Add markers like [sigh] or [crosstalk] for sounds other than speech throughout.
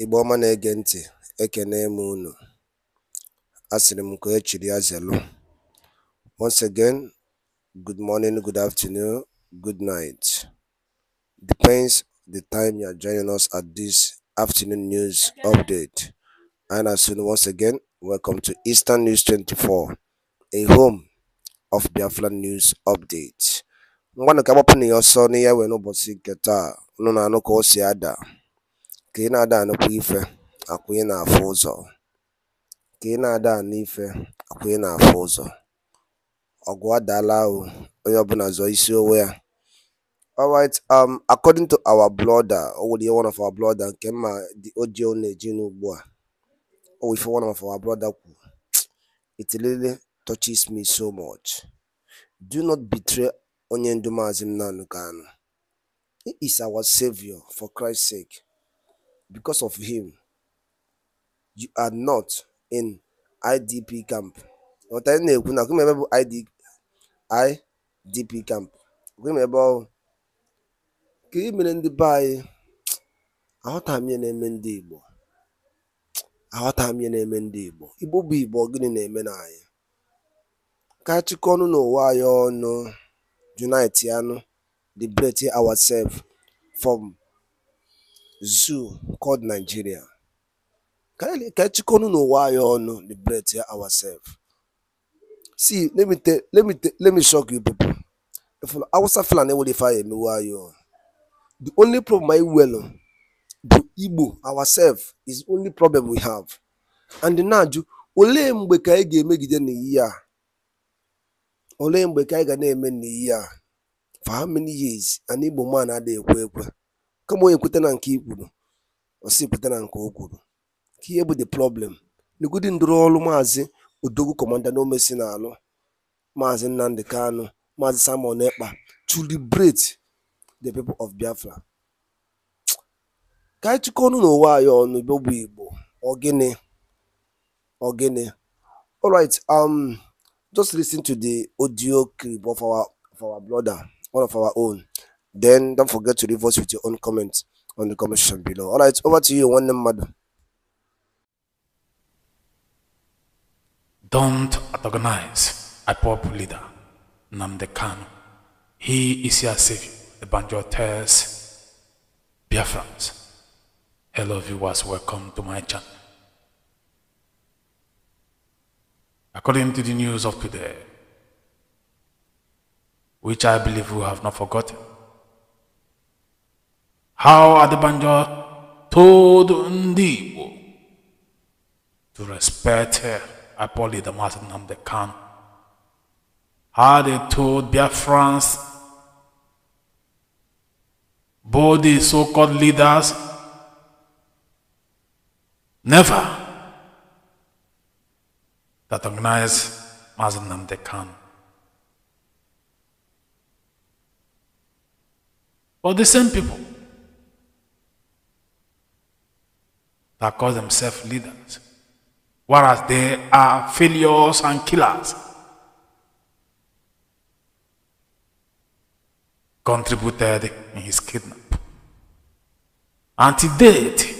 Igbo ọma na-ege ntị, ekene m unu. Asịrị m ka echiri ya zelu. Once again, good morning, good afternoon, good night. Depends the time you are joining us at this afternoon news update. And as soon once again, welcome to Eastern News 24, a home of Biafra News Update. ngwanụ ka agbapụ na ya ọsọ n'ihe wee n'ụbọchị nke taa unu na-anụ ka o si ada ka ị na ada ànụkwa ife akwụ ị nà ị na-adà ụzọ. Ọgwụ àkwà ị onye ọbụla zọ̀ọ isi onwe ya. alright um according to our brother o nwèrè ihe one of our brother nke mma dị o ọ nà-èjinu ùgbu à o nwè ife one of our brother kwù it touches me so much do not betray onye ndu Maazị Nnamdi Kanu he is our saviour for Christ sake Because of him, you are not in IDP camp. ị na-ekwu na kwụm ebe bụ IDP camp. kwụm ebe ọhụụ. ka ị e mere ndị be anyị [tsk] aghọtaghị m ihe na-eme ndị Igbo? aghọta m ihe na-eme ndị Igbo. Igbo bụ Igbo gịnị na-eme na anyị? Ka achịkọ ọnụ n'ụwa anyị ọnụ, unite yanụ, liberate ourselves from zoo called Nigeria. Ka echikọnụ n'ụwa anyị ọnụ liberate ourselves. See, let me tell, let me tell, let me shock you people. If Hausa Fulani will if I Why you. The only problem I will the Igbo ourselves is the only problem we have. And now olee mgbe ka anyị ga-emegide n'iyi a olee mgbe ka anyị ga na-eme n'iyi a for how many years an Igbo man adịghị ekwe ekwe kama onye kweta na nke i kwuru osi kweta na nke o kwuru ka ihe bụ the problem n'egudi ndụrụ ọrụ maazị odogwu kọmanda n'omesi na-alụ maazị nnamdị kanụ maazị samuel ekpa to liberate the people of biafra ka anyị chịkọ ọnụ n'ụwa anyị ọnụ bụ igbo ogene ogene all right um just ten to the audio clip of our of our brother one of our own Then don't forget to leave us with your own comments on the comment section below. All right, over to you, one name, madam. Don't antagonize a pop leader, Namde He is your savior. The banjo tells friends. Hello viewers, welcome to my channel. According to the news of today, which I believe we have not forgotten, how Adebanjo told Ndibo to respect Apoli the Master Namde Khan. How they told Biafrans, both the so-called leaders, never that recognize Mazen Namde Khan. But the same people that call themselves leaders, whereas they are failures and killers. Contributed in his kidnap. And to date,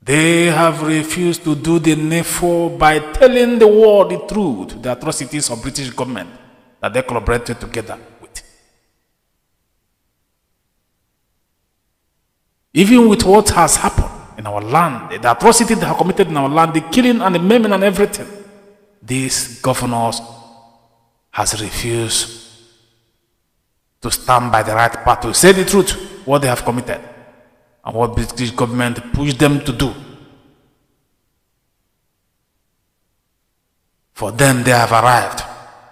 they have refused to do the needful by telling the world the truth, the atrocities of British government that they collaborated together with. Even with what has happened, in our land, the atrocity they have committed in our land, the killing and the maiming and everything, these governors has refused to stand by the right path to say the truth, what they have committed, and what British government pushed them to do. For them, they have arrived.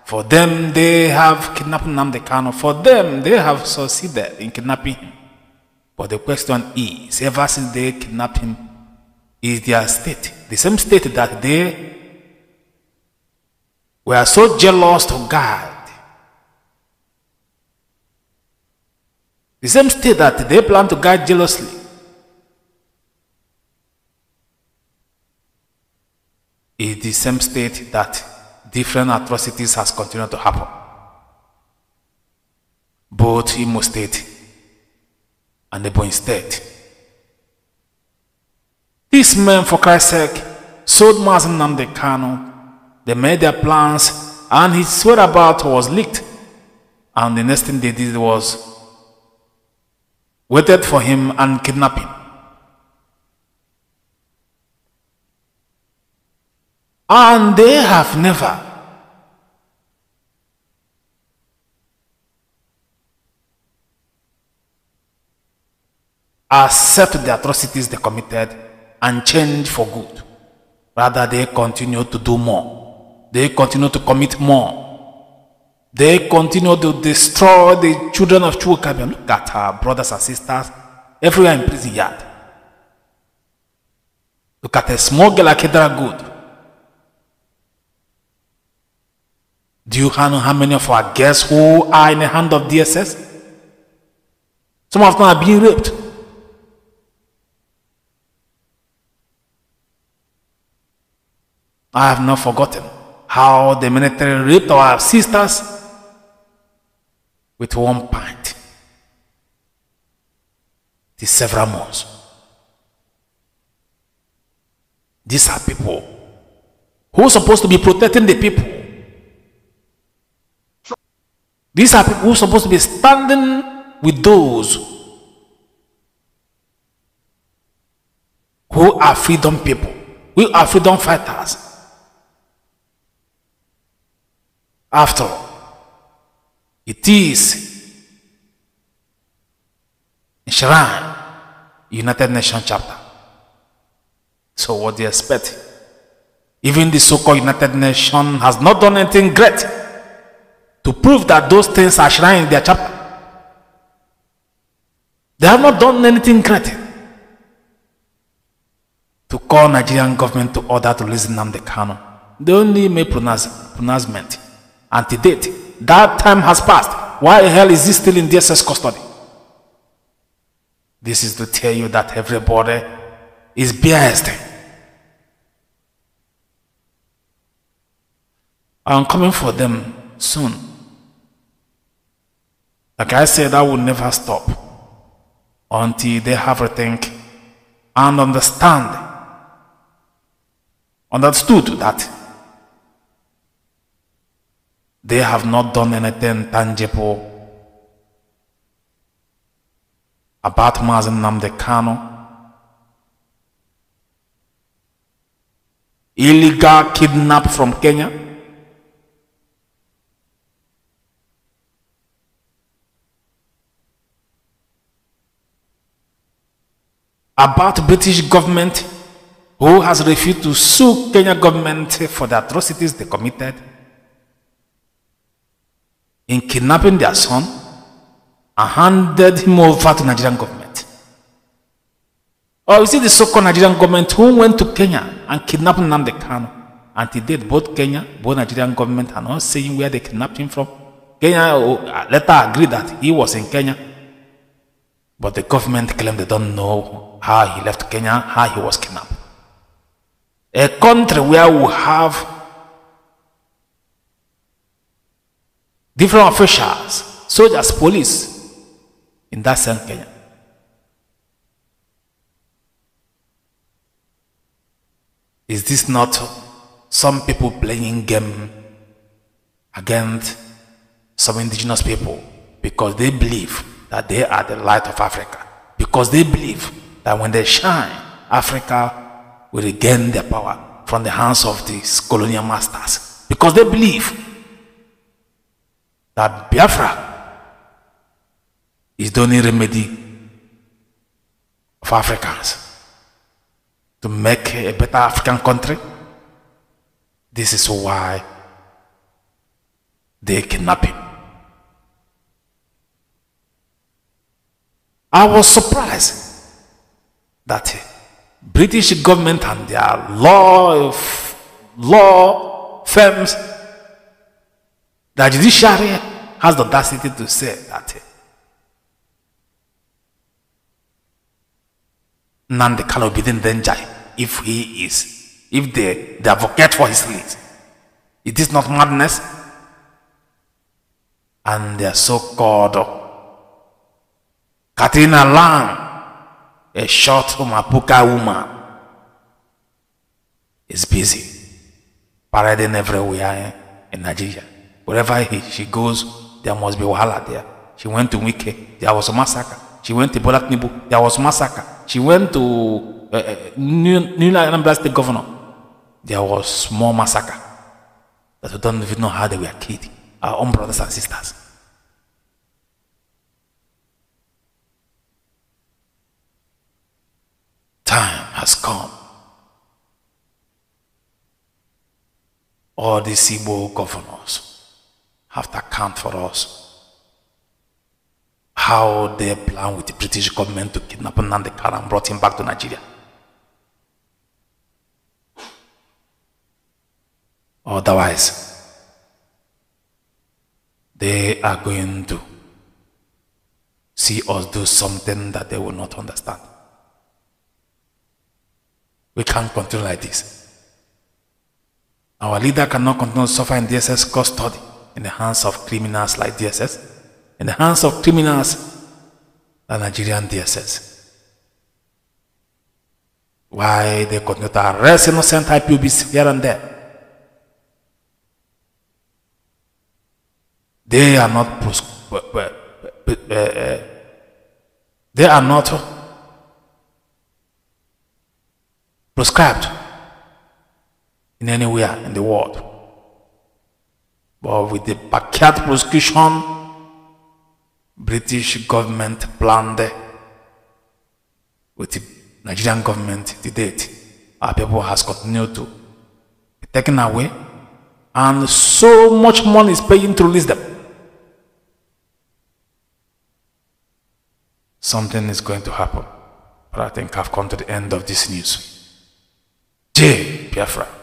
For them, they have kidnapped Namdekano. For them, they have succeeded in kidnapping him. But the question is, ever since they kidnapped him, is their state, the same state that they were so jealous to God, the same state that they plan to guard jealously, is the same state that different atrocities has continued to happen. Both most State and the boy is dead. These men, for Christ's sake, sold Mazen the canal. They made their plans, and his whereabouts was leaked. And the next thing they did was waited for him and kidnapped him. And they have never accept the atrocities they committed and change for good. Rather, they continue to do more. They continue to commit more. They continue to destroy the children of Chukabian. Look at her brothers and sisters everywhere in prison yard. Look at a small girl like Kedra Good. Do you know how many of our guests who are in the hand of DSS? Some of them are being raped. I have not forgotten how the military raped our sisters with one pint. It is several months. These are people who are supposed to be protecting the people. These are people who are supposed to be standing with those who are freedom people, who are freedom fighters. After all, it is enshrined United Nations chapter. So what do you expect? Even the so-called United Nations has not done anything great to prove that those things are enshrined in their chapter. They have not done anything great to call Nigerian government to order to listen the Kano. They only made pronounce, pronouncement until date. That time has passed. Why the hell is he still in DSS custody? This is to tell you that everybody is biased. I'm coming for them soon. Like I said, I will never stop until they have rethink and understand, understood that they have not done anything tangible about Mazen Namde Kano. Illegal kidnap from Kenya. About British government who has refused to sue Kenya government for the atrocities they committed in kidnapping their son and handed him over to Nigerian government. Or is it the so-called Nigerian government who went to Kenya and kidnapped Nnamdi Kanu? And he did both Kenya, both Nigerian government are not saying where they kidnapped him from. Kenya oh, uh, later agreed that he was in Kenya. But the government claimed they don't know how he left Kenya, how he was kidnapped. A country where we have different officials, soldiers, police, in that sense, Kenya. Is this not some people playing game against some indigenous people because they believe that they are the light of Africa? Because they believe that when they shine, Africa will regain their power from the hands of these colonial masters. Because they believe that Biafra is the only remedy for Africans to make a better African country. This is why they kidnap him. I was surprised that British government and their law law firms, the judiciary has the audacity to say that eh? Nandi cannot be Denjai if he is, if they, they advocate for his release, It is not madness. And their so-called oh, Katrina Lang, a short Mapuka woman, is busy parading everywhere eh, in Nigeria. Wherever he, she goes, there must be wahala there. She went to Wike, there was a massacre. She went to Bola there was a massacre. She went to uh, uh, New, New Anambra State Governor, there was more massacre. That we don't even know how they were killed, our own brothers and sisters. Time has come. All these Igbo governors have to account for us. How they plan with the British government to kidnap Nande and brought him back to Nigeria. Otherwise, they are going to see us do something that they will not understand. We can't continue like this. Our leader cannot continue suffering DSS custody in the hands of criminals like DSS, in the hands of criminals like Nigerian DSS. Why they continue to arrest innocent IPOBs here and there. They are not uh, uh, they are not prescribed in anywhere in the world. But with the Pakyat prosecution, British government planned with the Nigerian government to date. Our people has continued to be taken away and so much money is paying to release them. Something is going to happen. But I think I've come to the end of this news. J. Biafra.